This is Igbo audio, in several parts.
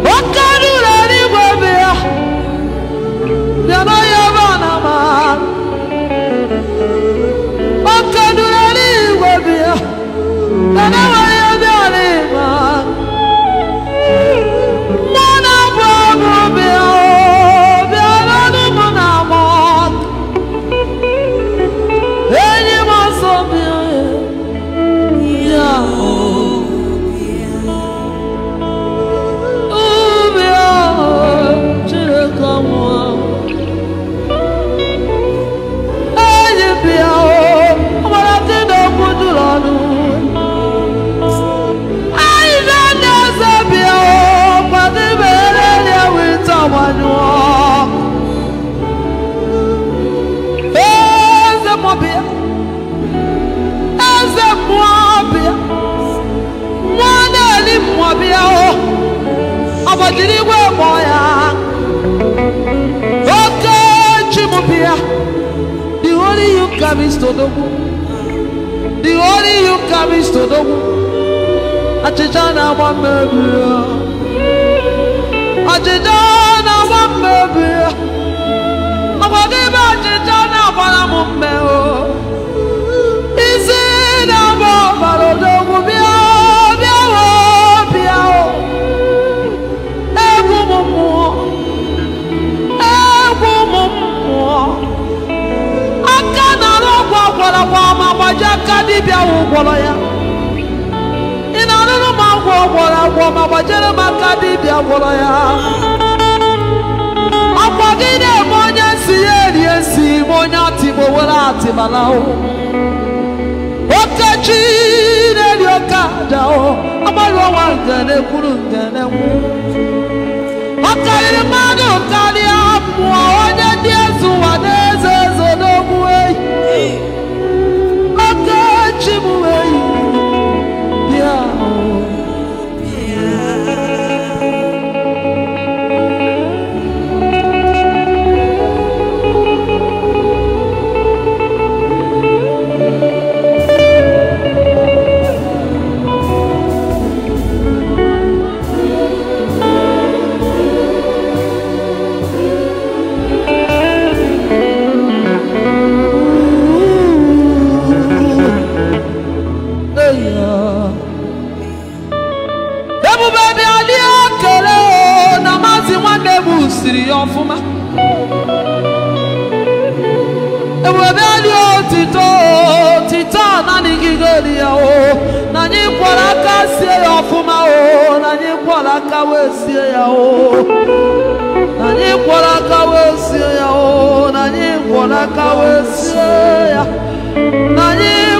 What? jiri igwe mmụọ ya oke chimụbịa the only you come is todogwu the only you come is todogwu achịcha na-agba mmebi ya achịcha na-agba mmebi ya ọ bụ n'ime achịcha na-agbara m mmehie agbaji aka bia ahụ gwọrọ ya ị na-arụrụ m agwọ gwọrọ agwọ ma gbajere m aka dibịa gwọrọ ya akwa gị na-eme onye si ya eri esi ma onye atịgbo were atịbala okechi na-eri oke aja ne ọnwa ngene kwuru ngene nwu ọ karịrị mmadụ karịa mmụọ tiri ya ọfụma ewebe dị otito otito a nanigigori ya o na anyị kwọrọ sie ya ọfụma o nani anyị kwọrọ aka wee sie ya o nani anyị kwọrọ aka wee sie ya o nani anyị kwọrọ aka wee sie ya na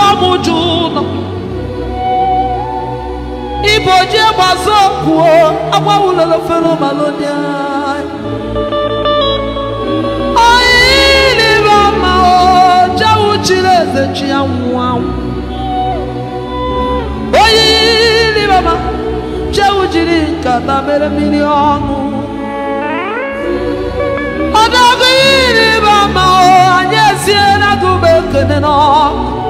como Juno iboji gbazo kwuo agbawulolo fero malonia oyilire ọma jewu jiri nkata mere mmiri ọnụ ọdọgụ yilire anyị esiela gị ekene n'ọkụ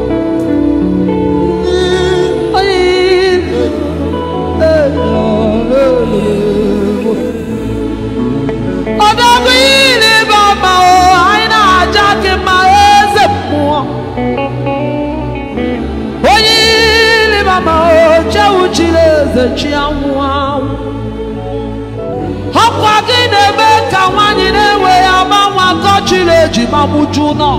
na-ekechi anwụ anwụ ọkwa gị na-eme ka nwaanyị na-enwe ya nwa akọchiri eji ma mụju nọ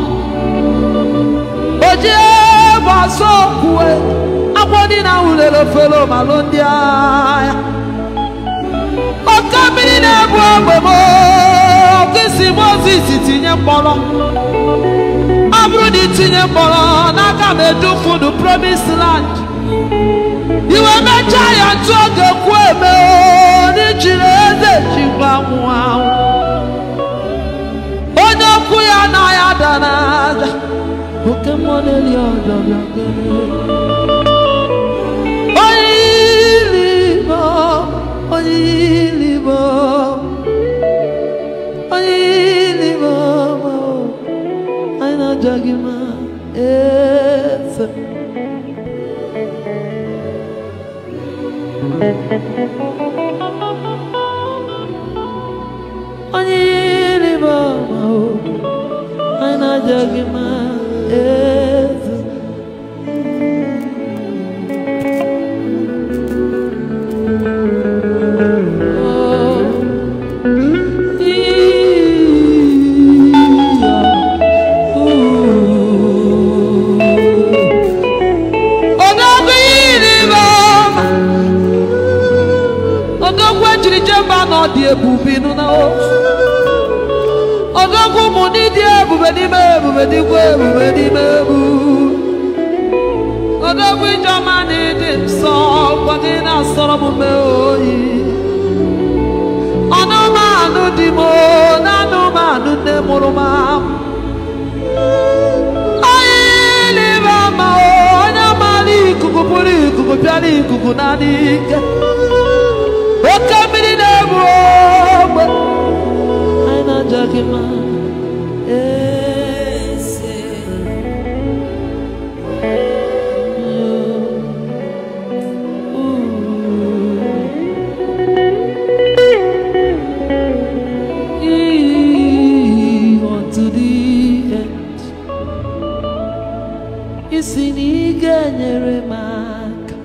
ojiebụasokwue agwọ dị na wulere felomalụ ndị agha oke mmiri na-ebu egbe isi Mozis tinye mkpọrọ ọ bụrụ na itinye mkpọrọ n'aka m edufudu promised land You are my giant, so kwuo eme n'ijiri eze chikwa nwụ anwụ onye okwu ya na ya dara ada Música ebube ịnụ na ọzọkwa ụmụ ndị dị ebube n'ime ebube dịkwa ebube n'ime ebu ọzọkwa ijeọma na ịdị nsọ gwadị na-asọrọ m mee oyi anụmanụ dị m na anụmanụ nne mụrụ m onye maara ikuku pụrụ ikuku bịara ikuku na adịghị ike dakima ese to the end isi na ị ga-enyere m aka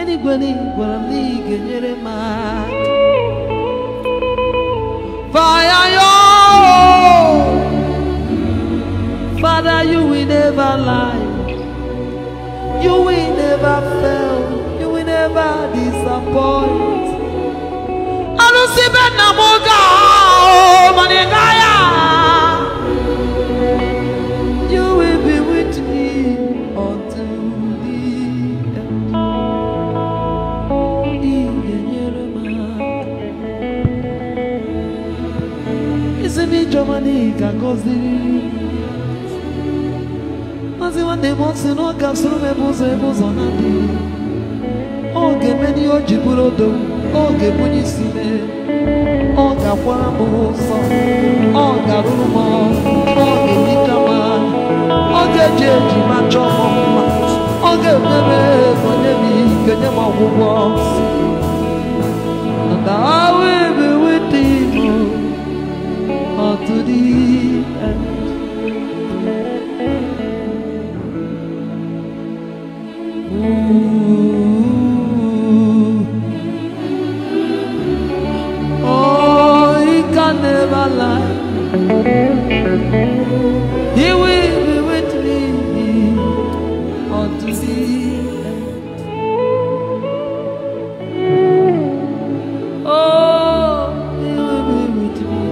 enigwe na never lie. You will never fail. You will never disappoint. I do oh, manegaya. You will be with me until the end. Germany can go maazị nwanne si na ọ ga-asụrụ m ụzọ ebe ụzọ na-adịghị ọ ga-eme n'ihe o ji bụrụ odo ọ ga-ebunye isi mee ọ ga-akwara m ụsọ ọ ga ọ eji eji ma chọọ m m ike nye ọgwụgwọ And I will be with He will be with me unto the end. Oh, He will be with me.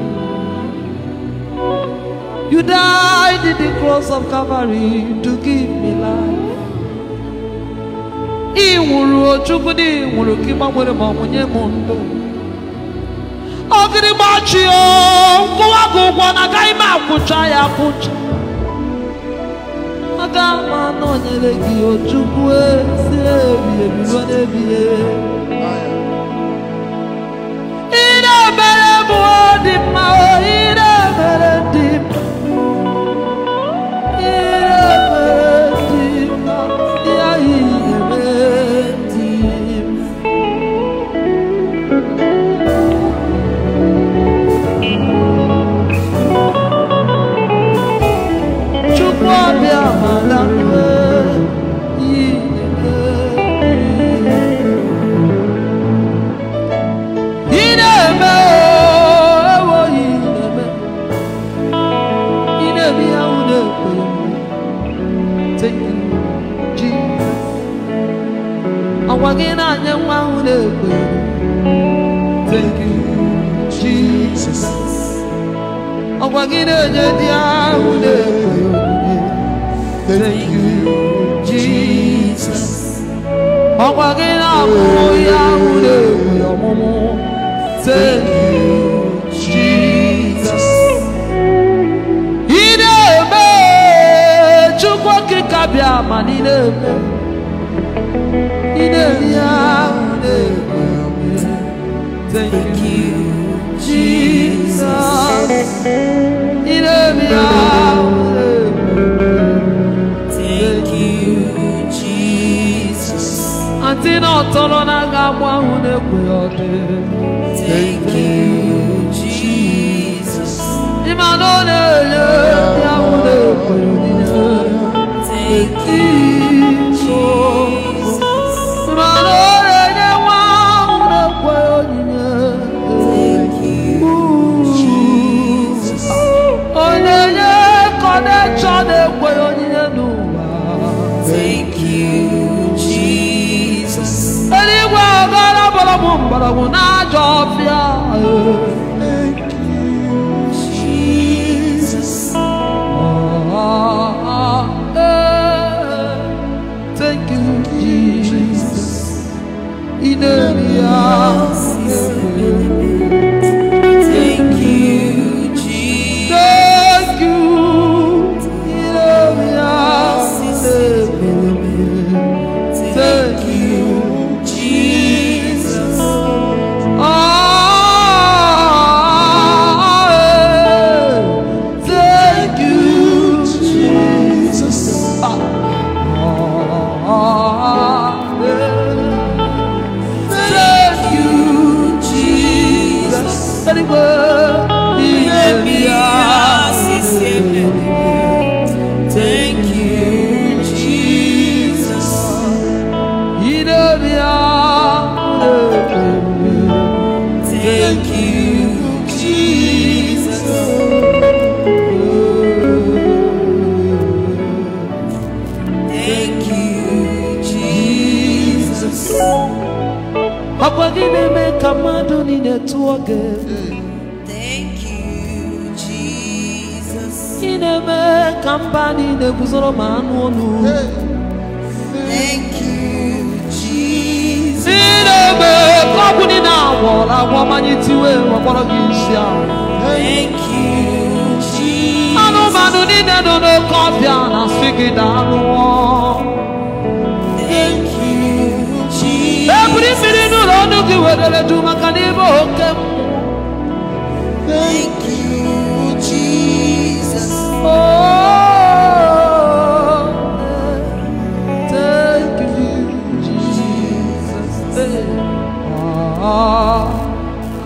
You died in the cross of Calvary to give me life. mgbachi nkụwa gị ụgwọ na agaghị ime akwụcha ya akwụcha. aga m anọnyere gị ojukwu si ebighị ebi ire obere bụ dị mma ire obere dị mma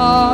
Oh.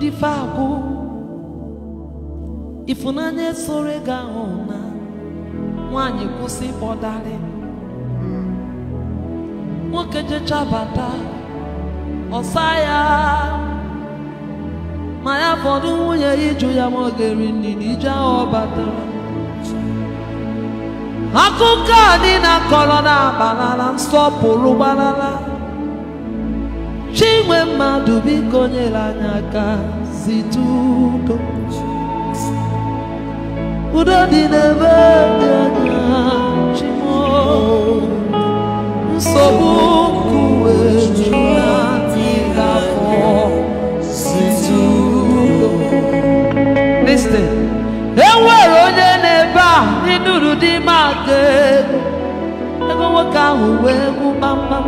dife akụ ifunanya soro ego ahụ na nwanyị kwụsị ịkpọdarị nwoke bata ọsa ya ma ya fọdụ nwunye ya ịjụ ya ma ọ ga nri na ije ahụ batara akụkọ a niile na abalala nsọpụrụ gbalala chinwe mmadụ biko nyere anyị aka site udo udo dị n'ebe dị anya chimo nsogbu nkuwe jụrụ afọ site udo listen enwere onye n'ebe a ịnụrụ dị maka ego ego nwoke ahụ wee gwụ mma.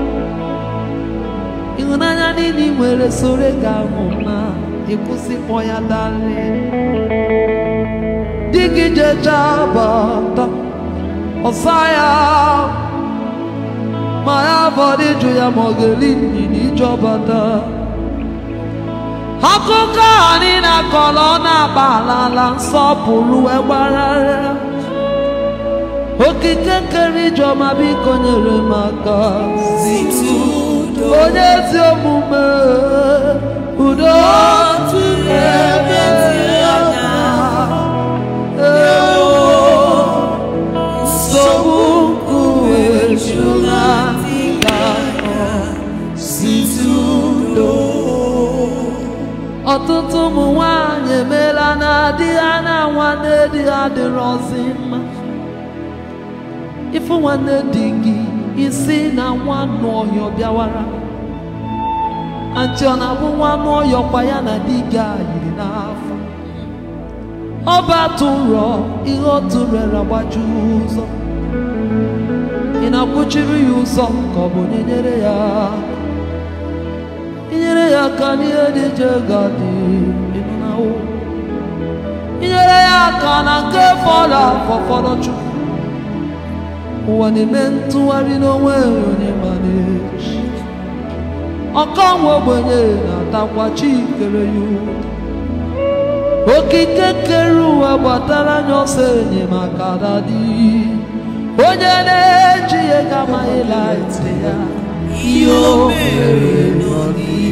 ịhụnanya niile ị nwere soro gị ahụ mma ịkwụsịkpọ e ya dali di gị jechaa bata ọsa ya ma ya bọdụ ịjụ ya ma ọ ga-eri nnyina ije bata akụkọ anyị na akọrọ ọ na-agba ala nsọpụrụ egbarara okike nkere ijeọma biko nyere m aka si onye ezi omume udo ebe ọtụtụ ụmụ nwanyị emeela na di ha na nwanne di ha dịrọzi mma ịfụ nwanne di gị isi na nwa ọhịa bịawara anti ọ na-abụ nwa n'ọyọ kwa ya na di gị a yiri n'afọ ọba atụ nrọ ihe otu mere agbaju ụzọ ị na-akwụchiri ya ụzọ ka ọ bụ onye nyere ya inyere ya aka n'ihe dị ga je gadị ịnụnawo inyere ya aka na nke fọrọ afọ fọrọ chukwu ụwa na-eme ntụgharị n'onwe onye ma na-echi ọkanwe ogbenye na-atakwa chi kere ya okike kere ụwa gbatara anya ọsọ enyemaka dadi onye na-eji ya gama ịla ya ihe o mere n'ọdịnihu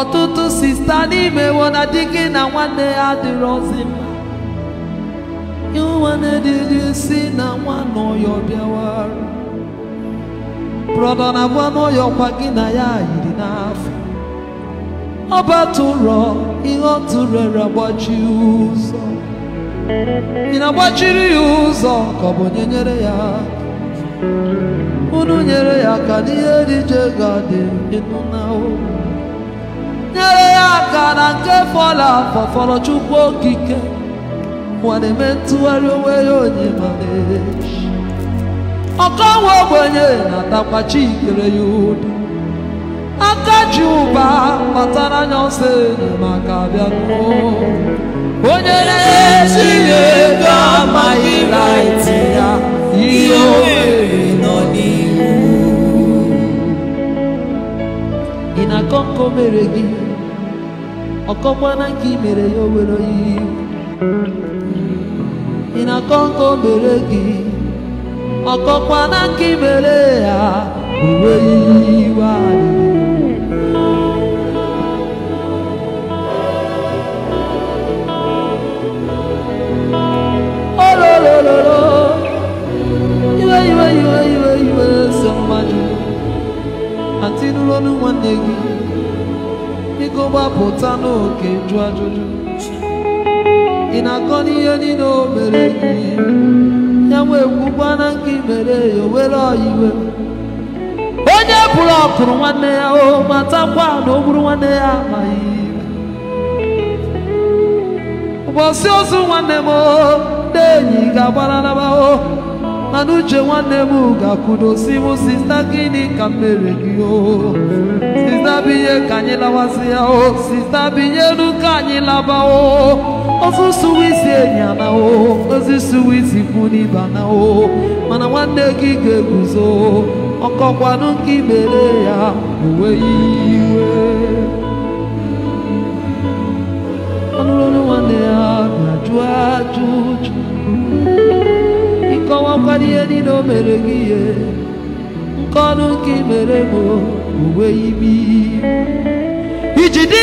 ọtụtụ sista n'ime wona di na nwanne ya dịrọzi mma nwanne dịrị si na nwa n'ụyọ bịawara brọda na gwa n'ụyọ kwa gị na ya yiri n'afọ ọ batụrọ ihe ọ tụrere ụzọ ị na-agbachiri ya ụzọ ka ọ bụ onye nyere ya unu nyere ya ka n'ihe dị je ga-adị ịnụ na nyere ya aka na nke fọrọ afọ fọrọ chukwu okike nwa eme ntụgharị onwe ya onye ma onyemana ọkọnwe ogbenye na-atakwa chi ikere ya ụdị aka ji ụba kpatara anya ọsọ maka bịa onye na-esi ego amaghị raiti ya ihe o nọ n'ihu ị na-akọ nkọ mere gị ọkọkwana nke i mere ya owere oyi ị na-akọ nke mere gị ọkọkwana nke i mere ya uwe iwe anyị iwe iwe iwe iwe iwe so mmadụ ọnụ nwanne gị gbapụta n'oke jụ ajụjụ ị na-akọ n'ihe niile o mere ya wee kwukwana nke mere ya o were ọyiwe onye pụrụ ọkụrụ nwanne ya o matakwa na o gburu nwanne ya amaghị ụbọchị ozu nwanne m o ndị enyi ga-agbaranaba o mana uche nwanne m ga-akwudo si m sista gịnị ka m mere gị o sista binye ka anyị lawasị ya o sista binyelu ka anyị laba o ozu swiss enyi ana o ozi suwa kwu o mana nwanne gị ga-eguzo ọkọkwanụ ka imere ya uwe iwe ọnụrụ nwanne ya na ajụ ajụjụ ọkwa ihe niile o mere gị ihe nke ọnụ nke mere m uwe imi iji dị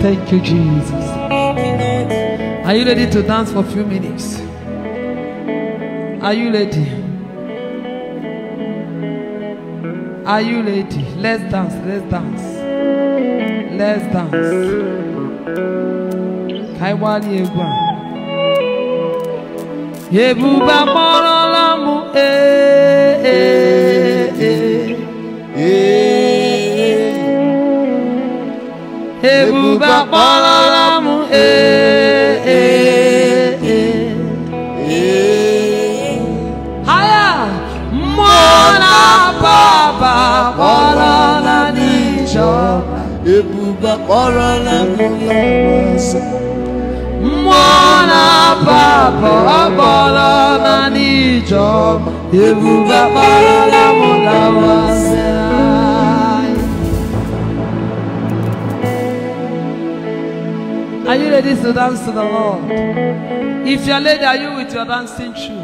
Thank you, Jesus. Are you ready to dance for a few minutes? Are you ready? Are you ready? Let's dance, let's dance. Let's dance. Kaiwali Egwa. Yebuba moro lamu e e e e Yebuba moro lamu e Ebu ba kpọrọ na mmụọ nsọ mmụọ na-aba abọ akpọrọ na Ebu ba kpọrọ na mmụọ nsọ Are you ready to dance to the Lord? If you're ready, are you with your dancing shoe?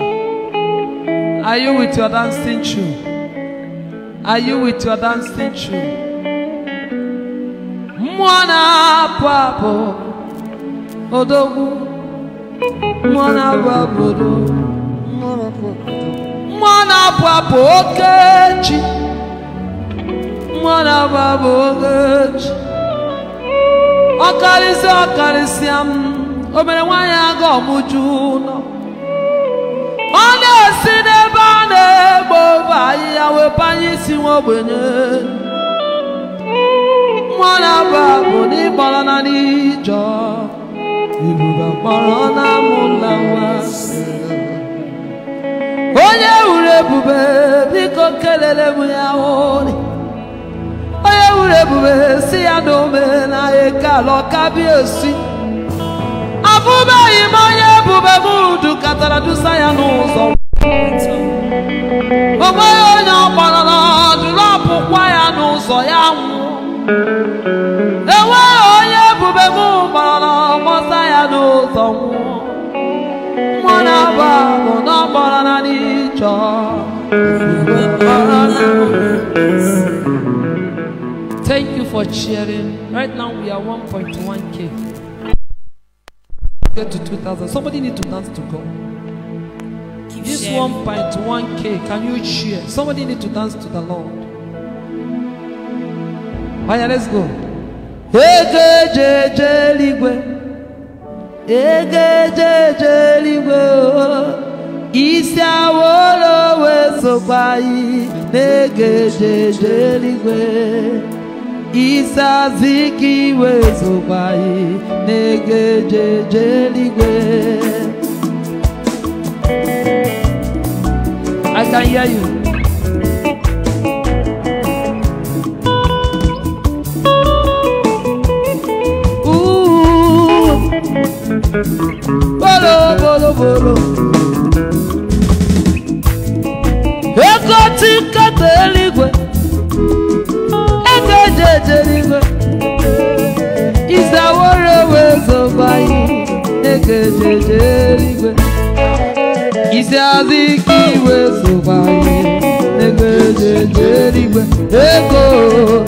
Are you with your dancing shoe? Are you with your dancing shoe? mwana apụ apụ odogwu mwana apụ apụ mwana apụ okechi mwana apụ apụ okechi ọkarịsịa ọkarịsịa m obere nwaanyị aga ọmụju ụlọ ọ na-esi n'ebe a na-egbo ofe ahịhịa wepụ anyị isi nwa ogbenye mmanụ aba bụ na na n'ijọ ebube kpọrọ ọnụ nwa onye wuru ebube biko ya ori onye wuru ebube si ya na omenala osi abụbeghị m onye ebube m katara dusa ya n'ụzọ onweghị onye ọ kpọrọ na ọpụkwa ya n'ụzọ ya nwụọ Thank you for cheering. Right now we are 1.1k. Get to 2,000. Somebody need to dance to go. Keep this 1.1k, can you cheer? Somebody need to dance to the Lord. Anya, let's go. Ego eje eje eligwe. Ego eje eje eligwe. Oh. Isi awolowe sokwa yi n'ego eje eje eligwe. Isi aziki iwe sokwa yi n'ego eje eje eligwe. I can hear you. bolo bolo bolo. Ego tikata eluigwe, ego eji eje eluigwe, izaworo wezoba anyị ego eji eje eluigwe, isi aziki wezoba anyị ego eji eje eluigwe, Eko.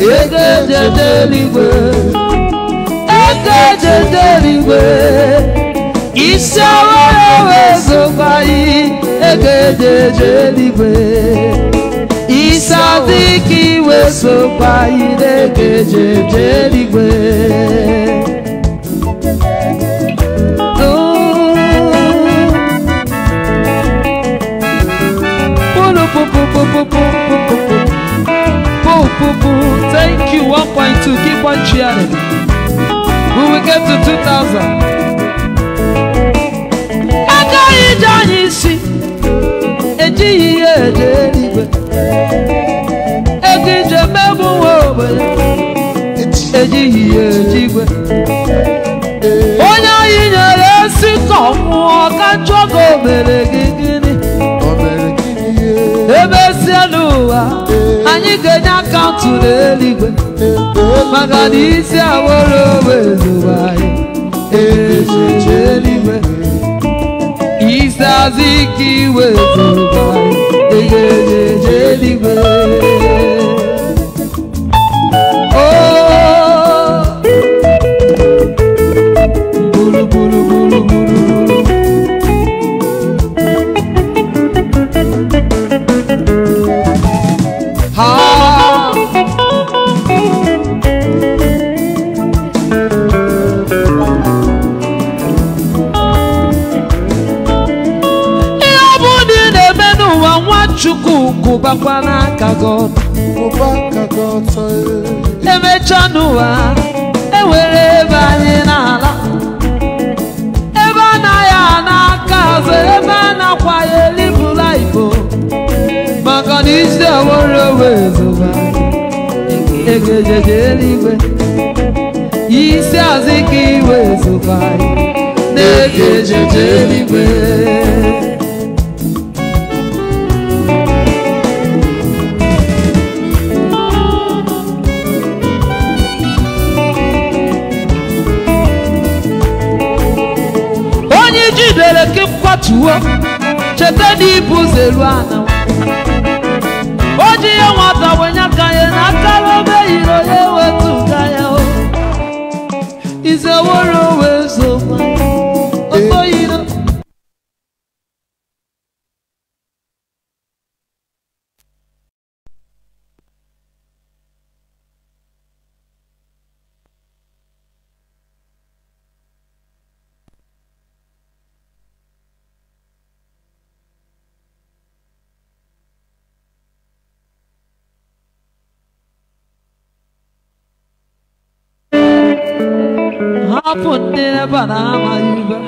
Eko eji eje eluigwe, ego. edemigwe isi ọhụrụ E yi egeje eje E isi adịghị iwe sokwa yi E egeje eje eluigwe Thank you, 1.2, keep on cheering. when we get to 2000. Agaghị ije anyị isi ejighị ya eje eluigwe ego ije mebu nwa obodo ejighị ya eje igwe onye anyị nyere esi ka ọ nwụọ ka njọ ka o mere ebe si n'ụwa anyị ga-enye akaụntụ n'eluigwe maka na isi aworo onwe ezobe anyị echiche eluigwe isi azụ ike iwe ezobe anyị eluigwe ọkwana aka God emecha n'ụwa ewere ebe anyị n'ala ebe anaghị anaka azụ ebe a ya elibụla ibo oh. maka na isi owere owezoba egejeje eluigwe isi azụ ka iwe zoba na-egejeje eluigwe tuo cheta n'ịbụ zelu ana o ji nwata wenye aka na akara obe yiri onye wetu ga o izeworo banamaiba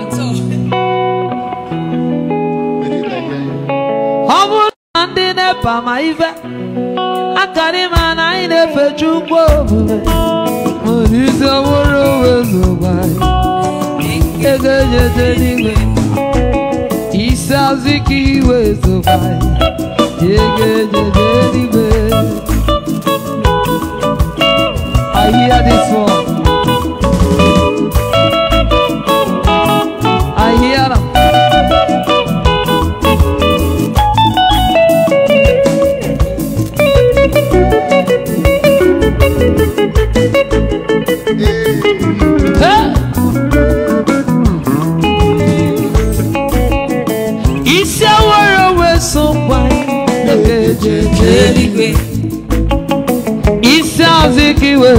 ọbụna ndị nepa ma ibe akarịma na anyị na-efe chukwu omume isi ọhụrụ wezụba ego enyete n'igwe isi azụ ike iwezụba ego enyete n'igwe I hear this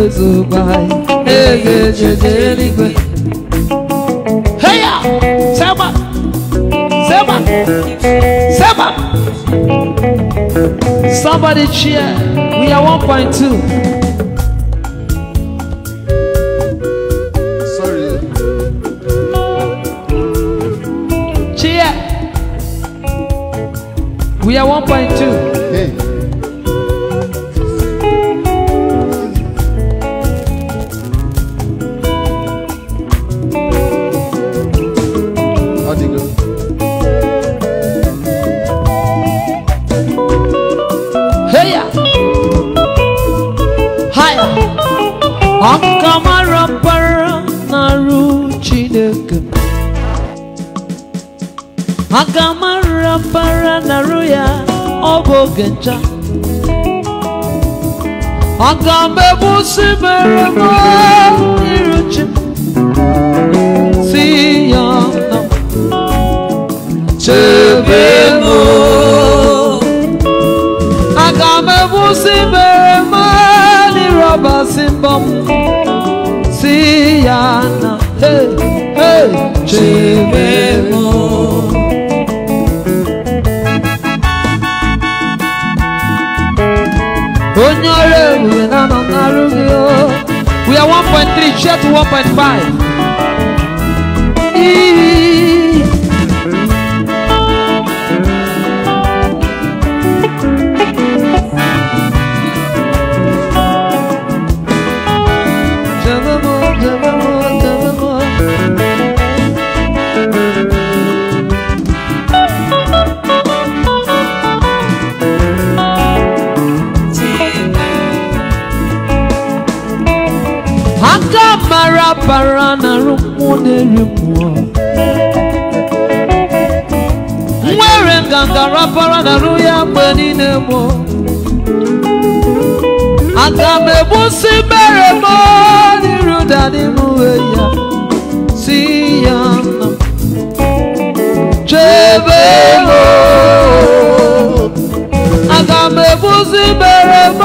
Jesu bai Ege jeje ligwe Heya Sema Sema Sema Somebody cheer We are 1.2 We are 1.2. ngenja agambe busi mere mo iruche si yana chebe no agambe busi mere mo ni roba 1.3, jet 1.5. ara na-arụ ya mgbe niile oh. mụ aga m egbusi mere m n'iru ya si ya nna m chebe ego oh. aga m egbusi mere m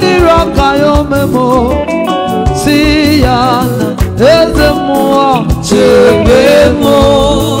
n'iru si ya nna eze chebe ego oh.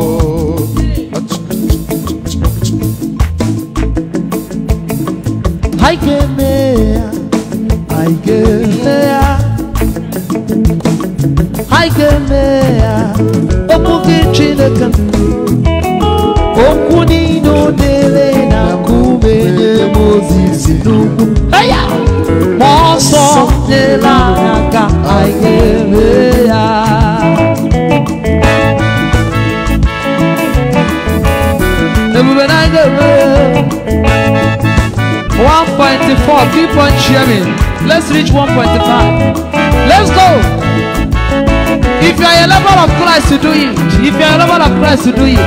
dëkkam okwu niile dere na kumenye Mozis n'ugwu ma ọsọ nyere anyị aka anyị ere ya ebube na anyị ga-ere 1.4 keep on sharing let's reach one point 1.5 let's go If you are a lover of Christ, you do it. If you are a lover of Christ, you do it.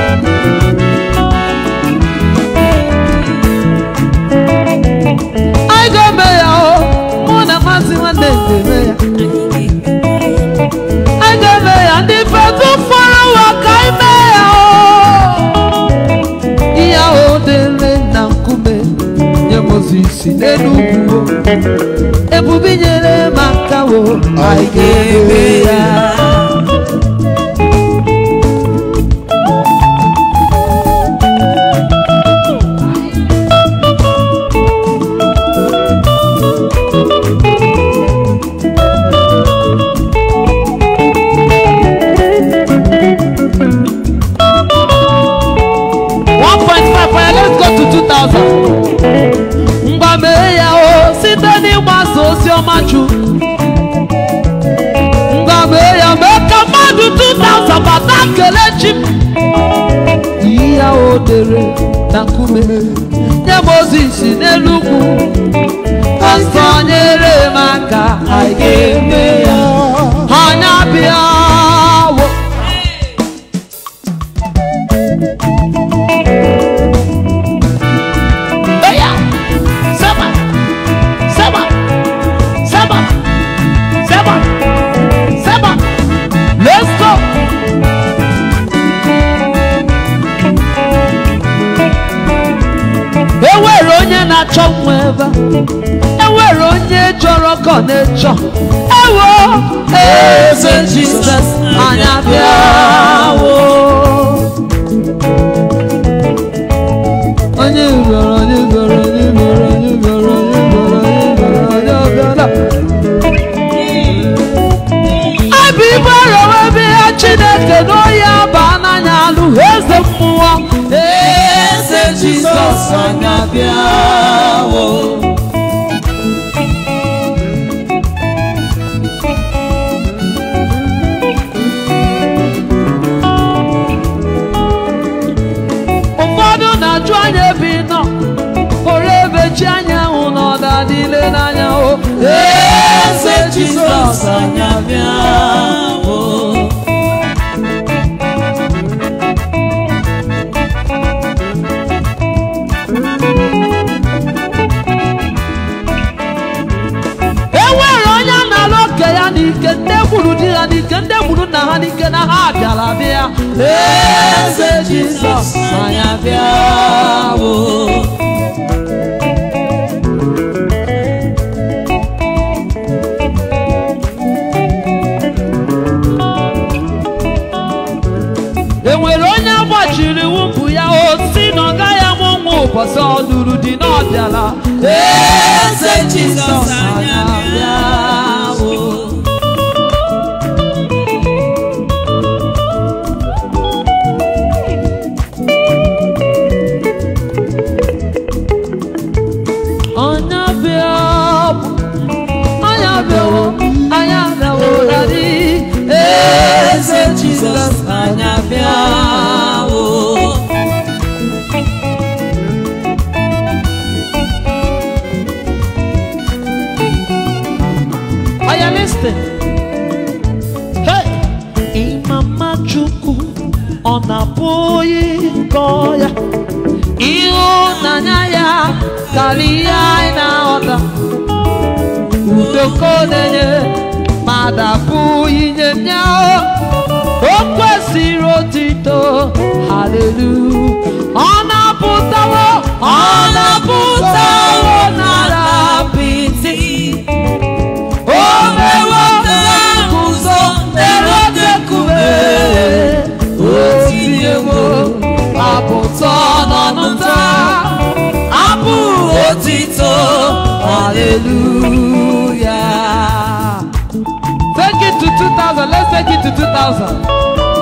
I go mayor, oh, one of us in one day, I go mayor, and if I do follow what I mayor, yeah, oh, the land and kume, yeah, Moses, in the new, Ebubinye le makawo, I go gave it. maju nga mee ya mee ka mmadụ 2000 bata kele chi m ihe o dere nkume nye mozis n'elu ugwu pastọ nyere m aka anyị ga ya ọba enwere onye chọrọ kọnechọ ewo eze jizọs anyị abịawo onye ugboro onye ugboro onye ugboro onye ugboro onye ugboro onye ugboro onye ọbịala abịa ibe ọrọ ebe ha osana biawo. ụfọdụ na-ajụ anya ebe ị nọ pụrụ ebechi anyanwụ n'ọda niile n'anyanwụ eze Jizọs anya bịa kwuru di ha n'ike ndị gburu nna ha n'ike na ha bịara bịa eze jizọs anyị bịa bụ enwere onye agbachiri wụpụ ya osi na ọ gaghị amụ nwa ụbọchị ọ lụrụ di na eze jizọs anyị bịa Ima ịma mma ọ na-abụ onye gọọ ya anya ya karịa anyị na-aghọta udoko na-enye ma dapụghị nye ya o kwesịrị otito hallelu. ọ na-apụtawo ọ na-apụtawo na apụtọ n'ọnụnta abụ otito hallelujah take it to 2000 let's take it to 2000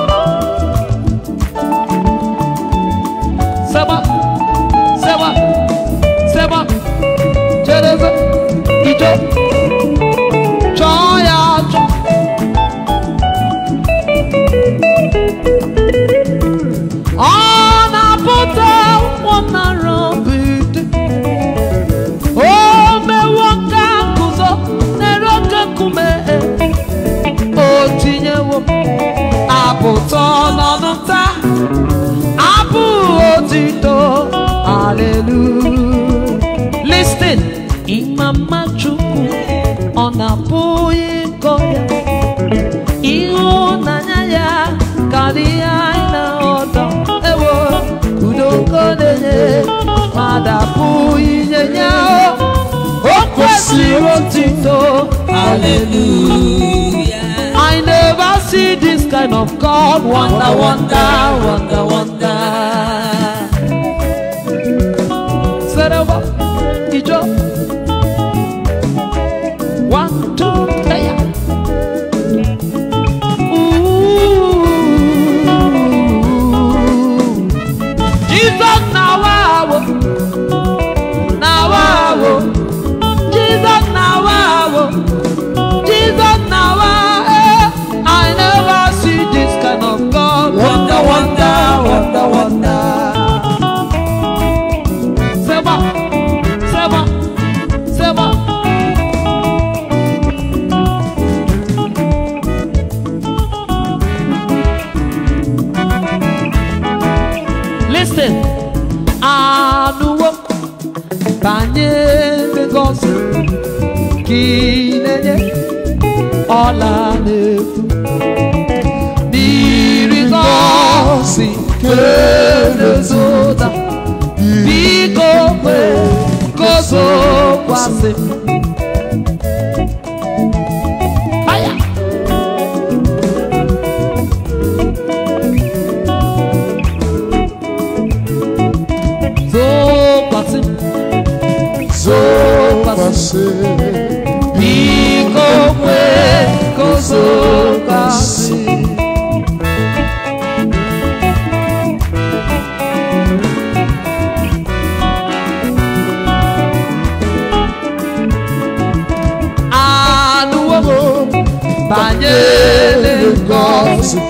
ọdịnala ụtọ ewo udo nkonenye mada pụ inyenye o kwesịrị otito hallelujah I never see this kind of God wonder wonder wonder wonder ọla na-efu n'iri nọọsị ke na Living God.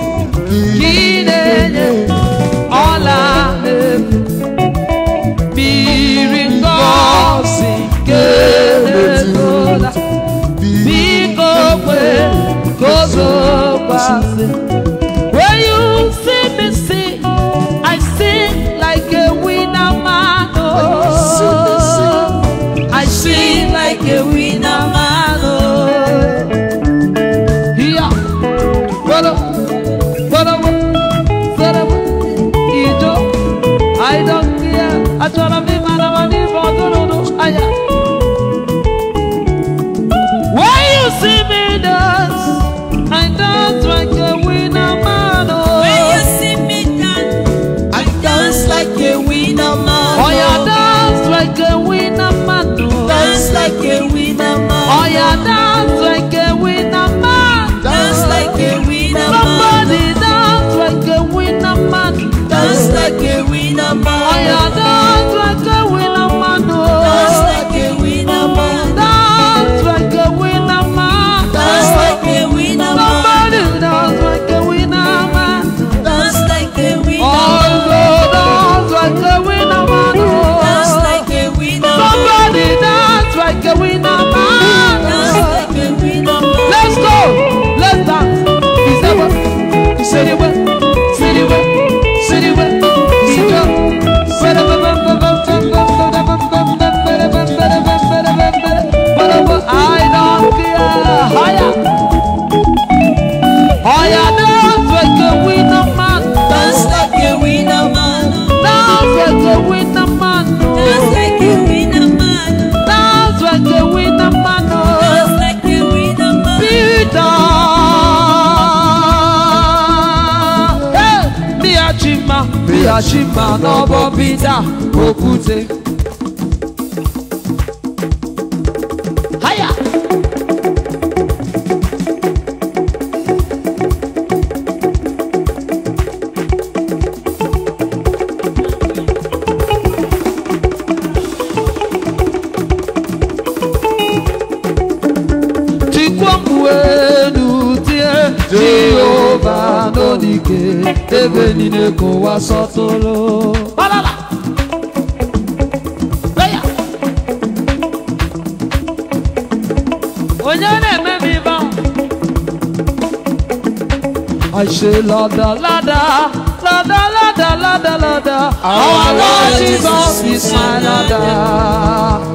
Lada, Lada, Lada, Lada, Lada, Lada. Our Lord Jesus is my Lada.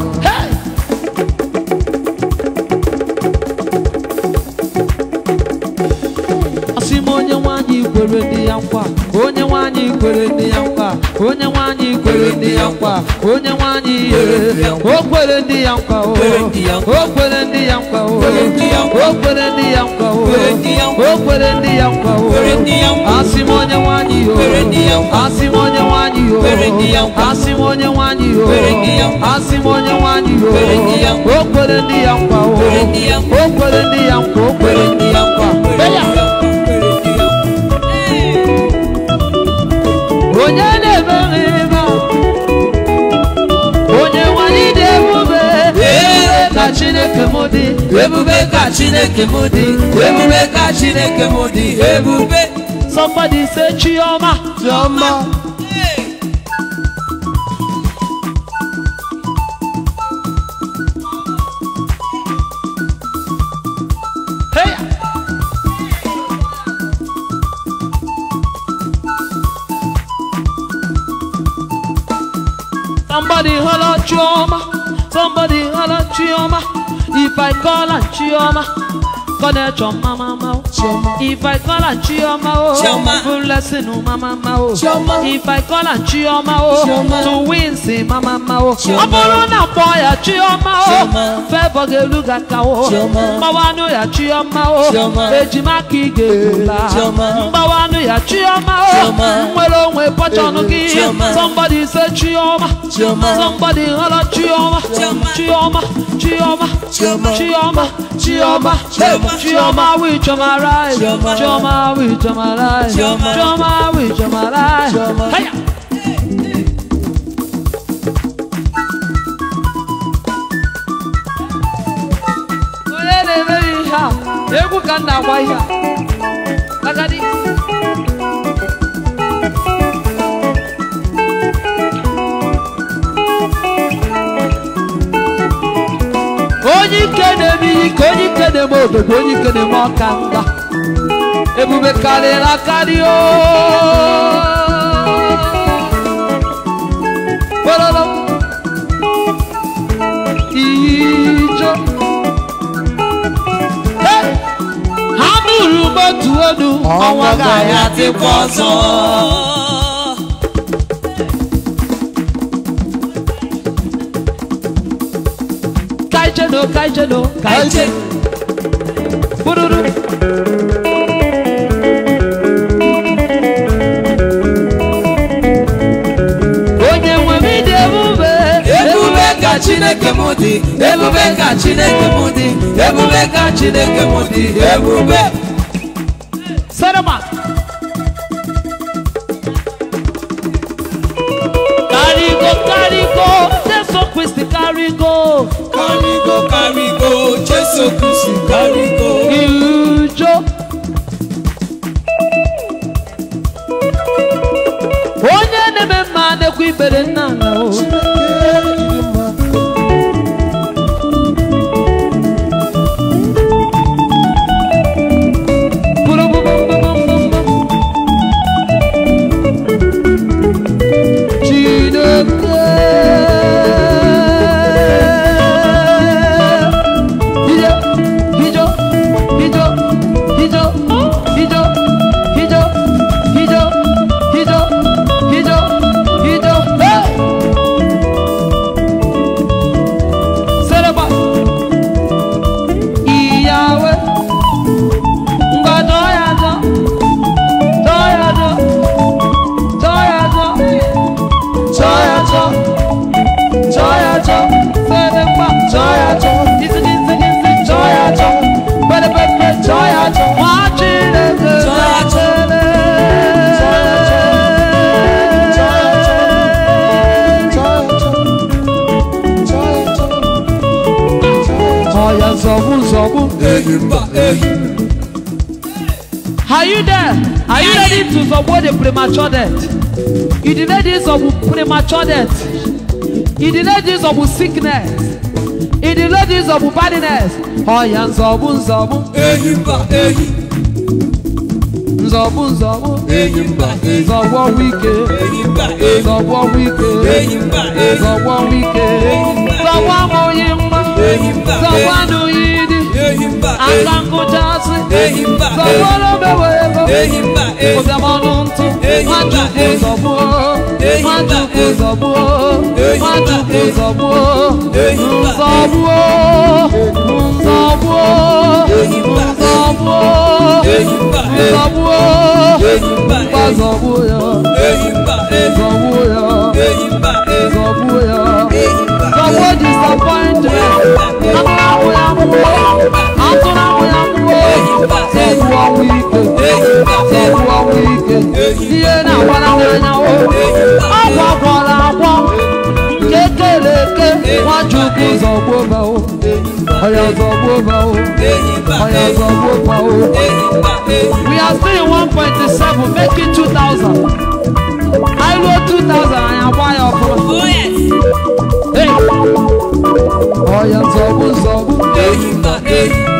Onye nwanyị kwere dị ya nkwa onye nwanyị kwere dị ya nkwa onye nwanyị kwere ndị ya nkwa onye nwanyị ihe o kwere ndị ya nkwa o kwere ndị ya nkwa o kwere ndị ya nkwa o kwere ndị ya nkwa o asị m onye nwanyị o asị m onye nwanyị o asị m onye nwanyị o asị m onye nwanyị o o kwere ndị ya nkwa o o kwere ndị ya nkwa o kwere ndị ya nkwa onye chineke mụdị ebube ka chineke modi ebube ka chineke mụdị ebube somebody say chioma chioma Somebody holla Chioma, somebody holla Chioma. If I call her Chioma, gonna Choma mama. Chioma. If I call her Chioma, oh, Chioma. full lesson oh mama ma If I call her Chioma, oh, to win say mama ma oh. Chioma. Aboro na boy Chioma oh, febo ge luga ka oh. Chioma. Mbawanu ya Chioma oh, Chioma. ejima ki ge la. Chioma. Mbawanu ya Chioma oh, Chioma. nwere onwe pọchọnụ gị. Chioma. Somebody say Chioma. Chioma. Somebody holla Chioma. Chioma. Chioma. Chioma. Chioma. Chioma. Chioma with Chioma right. Chioma with Chioma right. Chioma with Chioma right. Hiya. egwu ka m na-agwa ihe agadi onye ike na-eme ike onye ike na ọka mba ebube karịrị akarị ooo ijo ha bụrụ motu onu ọnwa ga-abịa dịkwa ọzọ Kaijano, Kaijano, Kaijin. Bururu. Onye nwe m dị ebube. Ebube ka Chineke m dị. Ebube ka Chineke m dị. Ebube ka Chineke m dị. Ebube. Jésù Kristi lárúkọ. Ìjó. Onye na-eme mma na-ekwu ibere nna na o. Zobu. Are you there? Are you ready to Zobu the premature death? You delayed this of premature death. You delayed this of sickness. You delayed this of badness. Oh, yeah, Zobu, Zobu. Ehimba, ehimba. nzọbụ nzọbụ nzọbụ wike nzọbụ wike nzọbụ wike nzọbụ amụghị mma nzọbụ anụghị Asankujazi Zawolo bewe Kuzemonunti Majuku zobuo Majuku zobuo Majuku zobuo Nzobuo Nzobuo Nzobuo Nzobuo Nzobuo Nzobuo Nzobuo Nzobuo disappointed. I'm not where I'm going we are still in one point seven make it two thousand i know two thousand anyị agba ya ọfụma ọya zọgbu zọgbu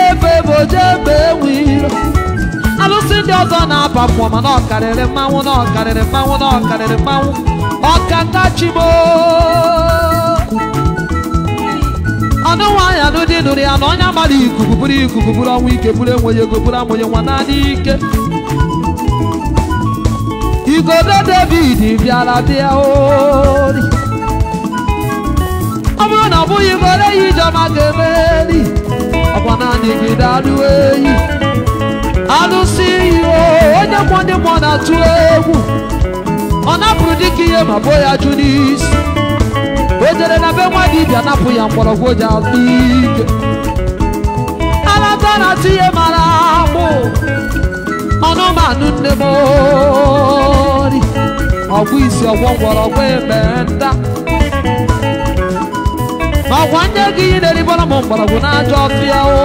ndị ọzọ na-aba mmụọ ma na karịrị mmanwụ na ọ mmanwụ na ọ karịrị mmanwụ ọkatachibo ọnụnwaanyị anụdị nụrụ ya na onye mara ikuku bụrụ ikuku bụrụ ọnwa ike bụrụ enweghị ego bụrụ amụnye nwa naanị ike igodo david bịara bịa ori ọ bụrụ na ọ bụghị igodo ya ijeọma ga-emeri ọkwa naanị gị daruo eyi alụsị ihe onye mụ ndị mmụọ na-atụ egwu ọ napụrụ dịka ihe ma bo ya jụ n'isi o jere na be nwa bịa napụ ya mgbọrọgwụ ji atụ ike alata na-atụ ihe mara akpụ ọnụmanụ nne m ori ọgwụ isi ọgwọ mgbọrọgwụ ebe nta ma ọgwa nye gị ihe na-eribọrọ m mgbọrọgwụ na ajọ ọfịa o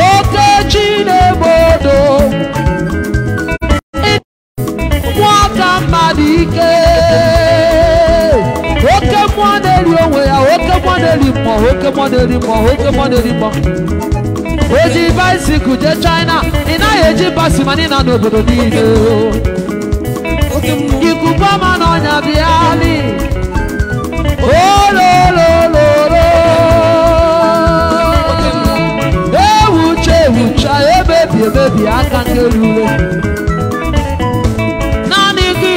okeji ji na-egbe odo nwata mmadụ ike oke mmụọ na-eri onwe ya oke mmụọ na-eri mmụọ oke mmụọ na oke mmụọ na mmụọ jee China ị naghị eji basi mana n'obodo niile ikuku ọma na bịa ji aka n'elu uwe naanị gị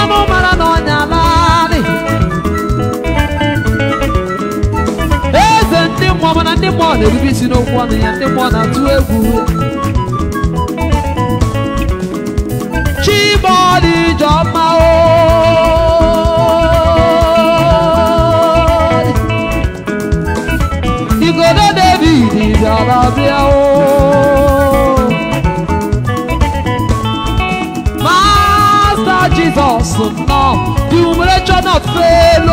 anụ mara na ọnya naanị eze ndị mmụọ mana ndị mmụọ na-erube isi n'okwu ọnụ ya ndị mmụọ na-atụ egwu bia Master Jesus, no, the humiliation not fail.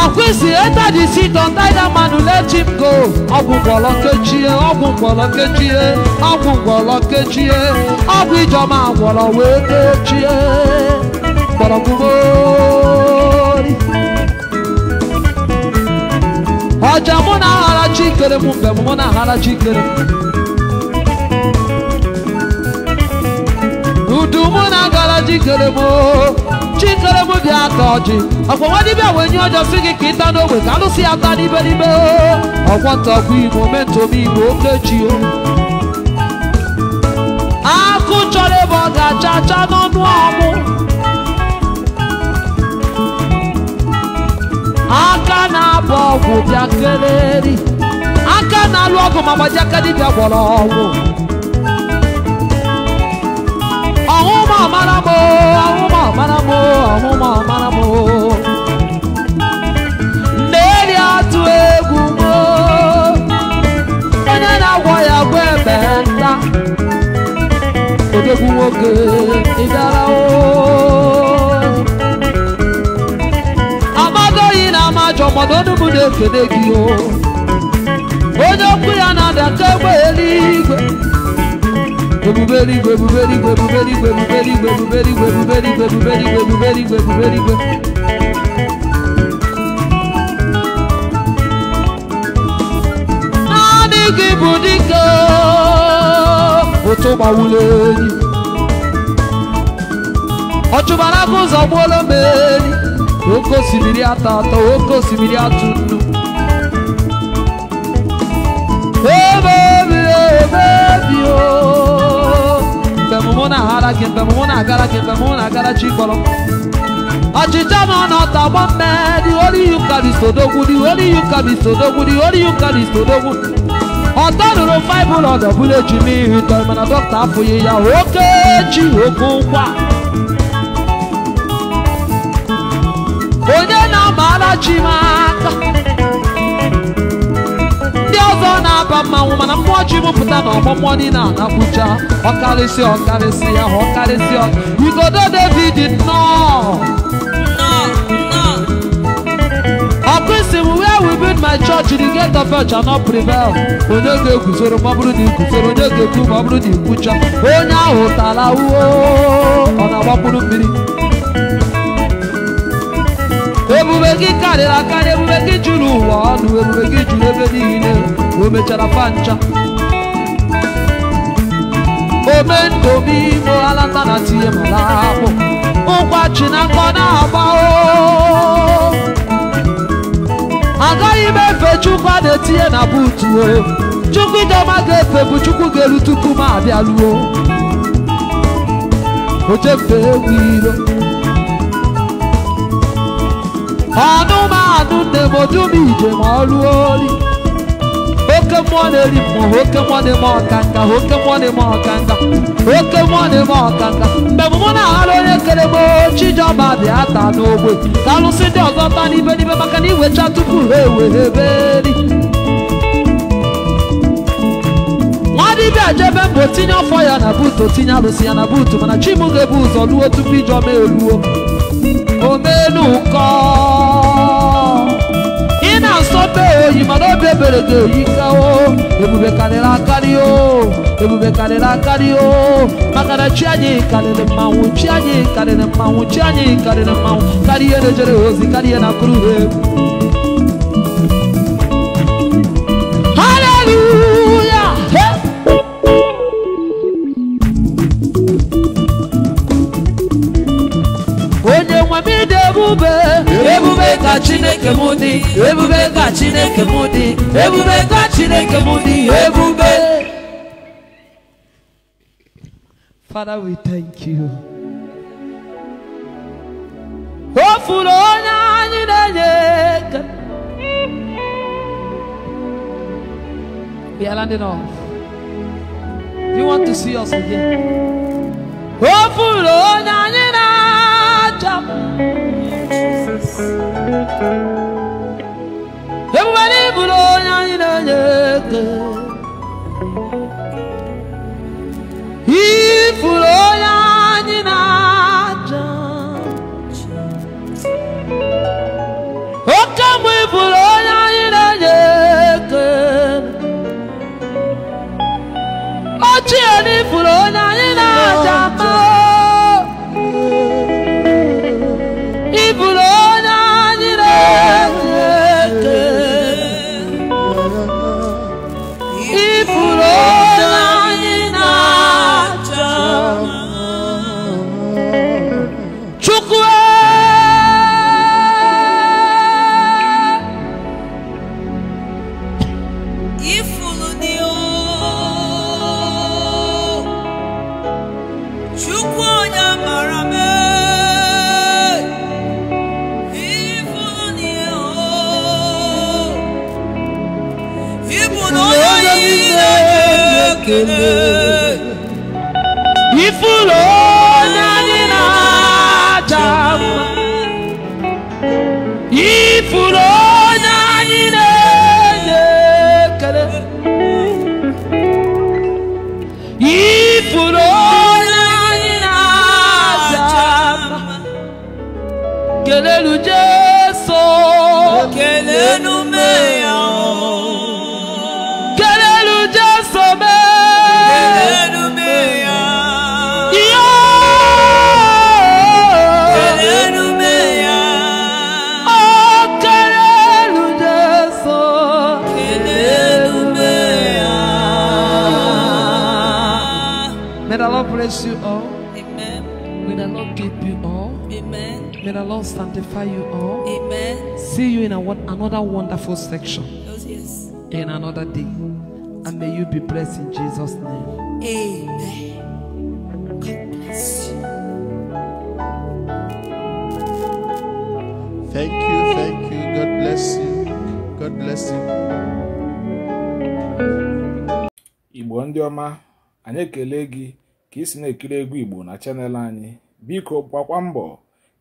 Akwụsị enter the seat on that man who let him go. Ọgwụ mgbọrọ kechie, ọgwụ mgbọrọ kechie, ọgwụ mgbọrọ kechie, ọgwụ ijọma gwọrọ wee kechie. Gbọrọgwụgboo. ọjà mụ hara aghara chi kere hara mgbe mụ na aghara chi mo m mo mụ na agara chi kere m chikere m dị aka ọjị ọkwa nwa dibịa wee nye si gị ka ịta n'ogbe ka ta n'ibe n'ibe ọkwọ ntakwa igbo mentom igbo okechi o akụ chọrọ ebe ọ ga-acha acha aka na-abụ ọgwụ bịa aka na-alụ ọgụ ma gbaji aka dibịa gwọrọ ọgwụ ọhụma mara m ọhụma m ọhụma m na-eri atụ egwu m onye na-agwọ ya gwa ebe nta odogwu nwoke ịdara oo ajọ mana onugbu na-ekele gị o onye okwu ya na-adata egbe eluigwe ebube eluigwe ebube eluigwe ebube eluigwe ebube eluigwe ebube eluigwe ebube eluigwe ebube eluigwe ebube eluigwe ebube eluigwe naanị gị bụ dike ụtụ gbawụlụ enyi ọchụbara gị ụzọ gbuola m enyi Oko simiri atọ atọ oke osimiri atụ nnu ebebi ebebi o mbemụmụ na-aghara gị mbemụmụ na-agara gị mbemụmụ na-agara chi kpọrọ ọchịcha ma ọ nọta agba mme dị ori ihe ụka bụ isodogwu dị ori ihe ụka bụ isodogwu dị ori ihe ụka bụ mana doctor afụghị ya oke chi oke alajimaka ndị ọzọ na-aba mmanwụ mana mmụọ ji mụpụta na ọgbọmmụọ niile na-abụja ọkarịsị ọkarịsị ahụ ọkarịsị igodo david nnọọ ọkụisi m where we build my church the gate of church shall not prevail onye ga-eguzoro ma ọ bụrụ na iguzoro onye ga-ekwu ma ọ bụrụ na ikwucha onye ahụ tara uo ọ na-agbapụrụ mmiri ebube gị karịrị akarị ebube gị juru ụwa ọnụ ebube gị juru ebe niile o mechara pancha omendụbi moalata na tie mara akpụ na nkọ na-agba agaghị m efe chukwu a na-etinye na buutu o chukwu idoma ga-efe bụ chukwu ga-eru tupu m abịaruo oche mfe egwu iro anụmanụ ndemodu na ijem ọrụ ori oke mmụọ na-eri mmụọ oke mmụọ na-eme ọkanga oke mmụọ na-eme ọkanga oke mmụọ na-eme ọkanga mgbe mụ na-aghara onye kere m chijọba bịa ta n'ogbe ka alụsị ndị ọzọ taa n'ibe n'ibe maka na iwecha tupu ha ewere eberi nwadibịa jebe mbụ tinye ọfọ ya na buutu tinye alụsị ya na buutu mana m ga-ebu ụzọ luo tupu ijeọma eruo omelu kọ ị na-asọbe oyi mana obi ebere ga-eyi kawo ebube karịrị akarị o ebube karịrị akarị o maka na chi anyị karịrị mmanwụ chi anyị karịrị mmanwụ chi anyị karịrị mmanwụ karịa na-ejere ozi karịa na kụrụ egwu chineke m ebube ka chineke m ebube ka chineke ebube Father, we thank you. O onye anyị na-enye aka. We are landing off. Do you want to see us again? on, I'm in na na-achọ yes everybody bulo nyanyi na nyeke ifulo nyanyi na janchi okamwe ifulo nyanyi na nyeke ochie ni ifulo nyanyi If, fool. Lord sanctify you all. Amen. See you in a, another wonderful section. Oh, yes. In another day. And may you be blessed in Jesus' name. Amen. Thank you, thank you. God bless you. God bless you. Igbo ndị ọma, anyị ekele gị ka ị si na-ekiri egwu Igbo na chanel anyị. Biko gbakwa mbọ